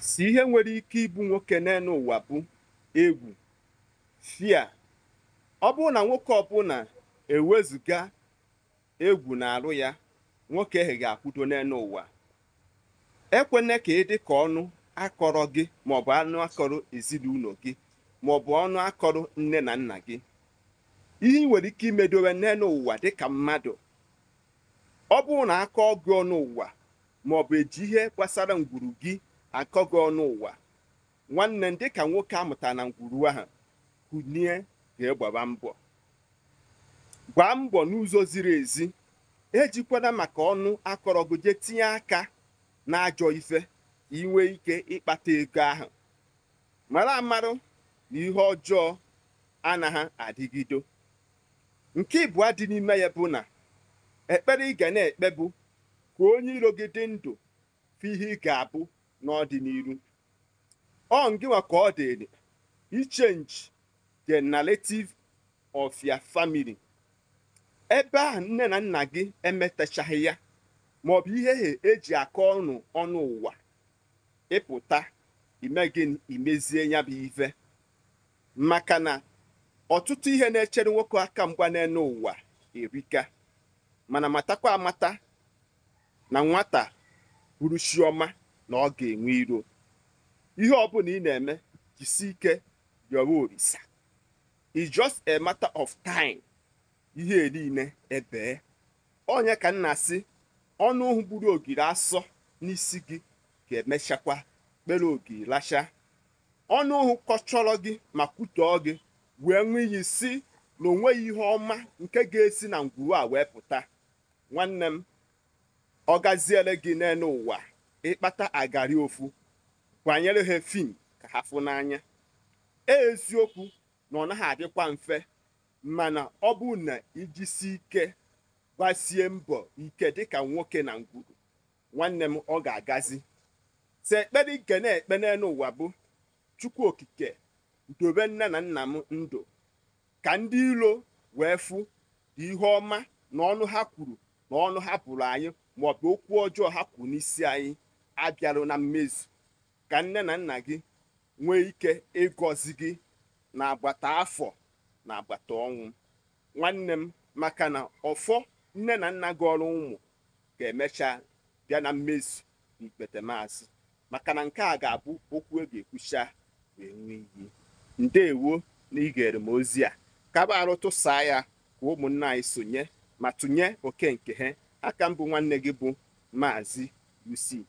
si ihe nwere ike ịbụ nwoke n'elu ụwa bụ egwu fia ọ bụrụ na nwoke ọbụla ewezụga egwu na-arụ ya nwoke ahụ ga-akwụdo n'elu ụwa ekwene ka ị dị ka ọnụ akọrọ gị maọbụ anụ akọrọ ezinụlọ gị maọbụ ọnụ akọrọ nne na nna gị ihe ị nwere ike imedowe n'elu ụwa dịka mmadụ ọ bụrụ na akọ gị ọnụ ụwa maọbụ eji ihe gbasara ngwuru gị akọ gị ọnụ ụwa nwanne ndị ka nwoke amụta na ngwuru ahụ kunie ga e gbaba mbọ gbaa mbọ n'ụzọ ziri ezi ejikwala maka ọnụ akọrọgụje tinye aka na ajọ ife inwe ike ịkpata ego ahụ mara amarụ na ihe ọjọọ anaghị adịgido nke ịbụa dị n'ime ya bụ na ekpere ị ga na-ekpe ka onye iro gị dị ndụ fi ihe ị ga-abụ n'ọdịnihu ọ ngịnwa ka ọ dị ichenji the narrative of your family ebe a nne na nna gị emetachaghị ya maọbụ ihe eji akọ ọnụ ọnụ ụwa ịpụta ime gị imezie ya bụ ife maka na ọtụtụ ihe na-echere nwoke aka mgba n'elu ụwa erika mana matakwa amata na nwata bụrụ chioma na ọ ga-enwe iro ihe ọ bụla ị na-eme jisi ike rịọrọ orisa is just a matter of time ihe niile ebee onye ka nna sị ọnụ ụhụ gburu ogiri asọ n'isi gị ga-emechakwa kpere ogiri lacha ọnụ ụhụ kọchọrọ gị ma kwutọọ gị wee nwee iyi si na onweghị ihe ọma nke ga-esi na ngwuru a wee pụta nwanne m ọ gaziere gị n'elu ụwa ịkpata agari ofu kwanyere ha fin ka ha fụ n'anya e, eziokwu na ọ naghị adịkwa mfe mana ọ bụ na ijisi ike gbasie mbọ ike dịka nwoke na ngwuru nwanne m ọ ga-agazi te ekpere ike na-ekpe n'elu ụwa bụ chukwu okike dobe nne na nna m ndụ ka ndị iro wee fụ dị ihe ọma na ọnụ ha kwuru na ọnụ ha pụrụ anyị maọbụ okwu ọjọọ ha kwuru n'isi anyị abịarụ na mmezu ka nne na nna gị nwee ike ịgọzi gị na agbata afọ na agbata ọnwụ nwanne m maka na ọfọ nne na nna gị ọrụ ụmụ ga-emecha bịa na mmezu n'ikpete maazị maka na nke a ga-abụ okwu e ga-ekwucha wee nwee iyi ndeewo na igere m ozi a kaba arụ tụsaa ya ka ụmụnna anyị sonye ma tụnye oke nke ha aka mbụ nwanne gị bụ maazị usi